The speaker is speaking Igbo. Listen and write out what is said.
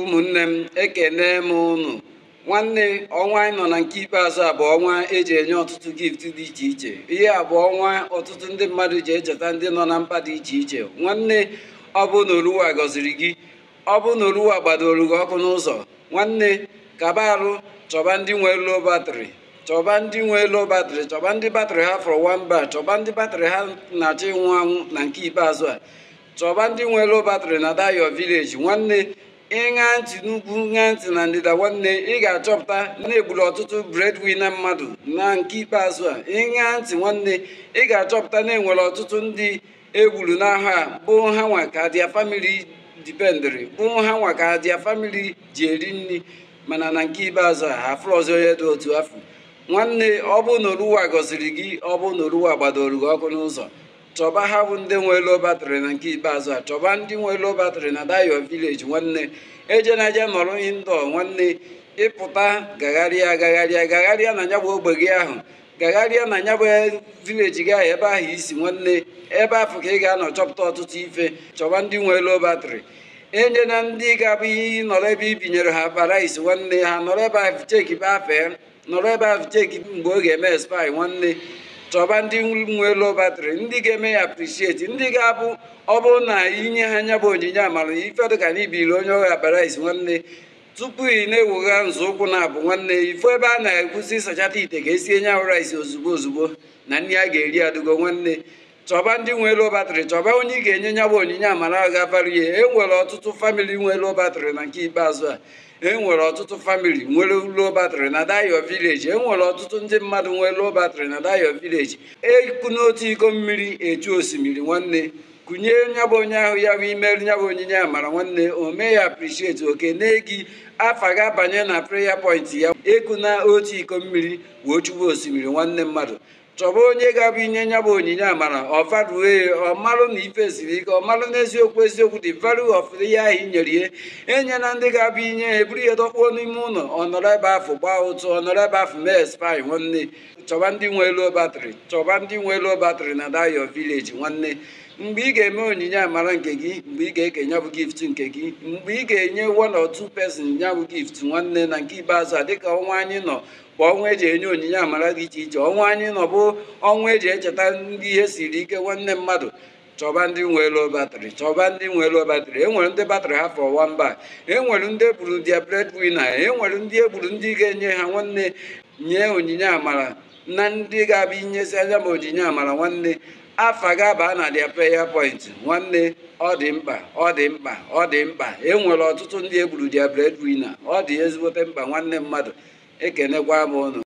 ụmụnne m ekene m ụnụ nwanne ọnwa anyị nọ na nke ikpeazụ a bụ ọnwa eji enye ọtụtụ gift dị iche iche ihe a bụ ọnwa ọtụtụ ndị mmadụ ji echeta ndị nọ na mpa dị iche iche nwanne ọ bụ na oluwa gọziri gị ọ bụ na oluwa gbadoro gị ọkụ n'ụzọ nwanne kaba arụ chọba ndị nwe low batrị chọba ndị nwe low batrị chọba ndị batrị ha fọrọ nwamba chọba ndị batrị ha na-achọ ịnwụ anwụ na nke ikpeazụ a chọba ndị nwe low batrị na dayo village nwanne ịṅa ntị n'ugwu ṅa ntị na ndịda nwanne ị ga-achọpụta na egburu ọtụtụ breadwinner mmadụ na nke ikpeazụ a ịṅa ntị nwanne ị ga-achọpụta na enwere ọtụtụ ndị egburu n'aha bụ ha nwa ka dia famili dipendịrị bụ ha nwa ka dia famili ji eri nri mana na nke ikpeazụ a afụrụ ọzọ onye dị otu afọ nwanne ọ bụ na oruwa gọziri gị ọ bụ na oruwa gbadoro gị ọkụ n'ụzọ chọba ha bụ ndị nwe low batrị na nke ikpeazụ a chọba ndị nwe low batrị na dayo vileji nwanne eje na nọrọ indo nwanne ịpụta gagharịa gagharịa gagharịa na nyabụ ogbe gị ahụ gagharịa na nyabụ vileji gị ahụ ebe ahụ isi nwanne ebe afọ ka ị ga-anọ chọpụta ọtụtụ ife chọba ndị nwe low batrị enye na ndị ga-abụ ihe nọrọ ebe ibinyere ha parais nwanne ha nọrọ ebe ahụ cheki bafee nọrọ ebe ahụ cheki mgbe ọ ga-eme spai nwanne chọba ndị nwe lobatri ndị ga-eme ya aprisieti ndị ga-abụ ọ bụrụ na inye ha nya bụ onyinye amara ife dịka na ibiri onye ọha parais nwanne tupu ị na-ewegha nzọụkwụ na-abụ nwanne ifo ebe a na-ekwusi sachata ite ka esi enye ahụ rice ozugbo ozugbo na nri a ga-eri adịgo nwanne chọba ndị nwe low battery chọba onye ị ga-enye nya bụ onyinye amara gabarie e nwere ọtụtụ famịlị nwe low battery na nke ikpeazụ a e nwere ọtụtụ famịlị nwere low battery na dayo village e nwere ọtụtụ ndị mmadụ nwere low battery na dayo village eku n'otu iko mmiri echu osimiri nwanne kụnye nya bụ onye ahụ ya bụ imeri nya bụ onyinye amara nwanne o mee ya appreciate oke na-egi afa ga-abanye na prayer point ya ekuna otu iko mmiri wee osimiri nwanne mmadụ chọba onye ga-abụ inye nya bụ onyinye amara ọ e, ọmalụ na ife ziri ike marụ n'eziokwu eziokwu dị value of ihe ahụ nyere ihe enye na ndị ga-abụ inye ya e eburu ya dọkpuo n'ime ụlọ ọnọrọ ebe afọ gbaa ụtụ ọnọrọ ebe afọ mee spy nwanne chọba ndị nwe elu batrị chọba ndị nwe elu batrị na dayo village nwanne mgbe ị ga-eme onyinye amara nke gị mgbe ị ga-eke nyabụ gift nke gị mgbe ị ga-enye one or two person nyabụ gift nwanne na nke ibeazụ a dịka ọnwa anyị nọ bụ ọnwa eji enye onyinye amara dị iche iche ọnwa anyị nọ bụ ọnwa eji echeta ndị ihe siri ike nwanne mmadụ chọba ndị nwere batrị chọba ndị e nwere batrị enwere ndị batrị ha fọwa mba enwere ndị egburu dia e enwere e ndị egburu ndị ga-enye ha nwanne nye onyinye amara na ndị ga-abịa inyesi anya ma onyinye amara nwanne afa ga-aba na dia peya point nwanne ọ dị mkpa ọ dị mkpa ọ dị mkpa enwere ọtụtụ ndị egburu dia wina ọ dị ezigbote mkpa nwanne mmadụ ekenekwa m unu